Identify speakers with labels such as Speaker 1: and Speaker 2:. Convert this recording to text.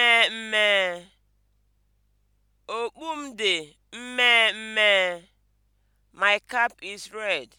Speaker 1: mmeemmee, okpu m dị my cap is red.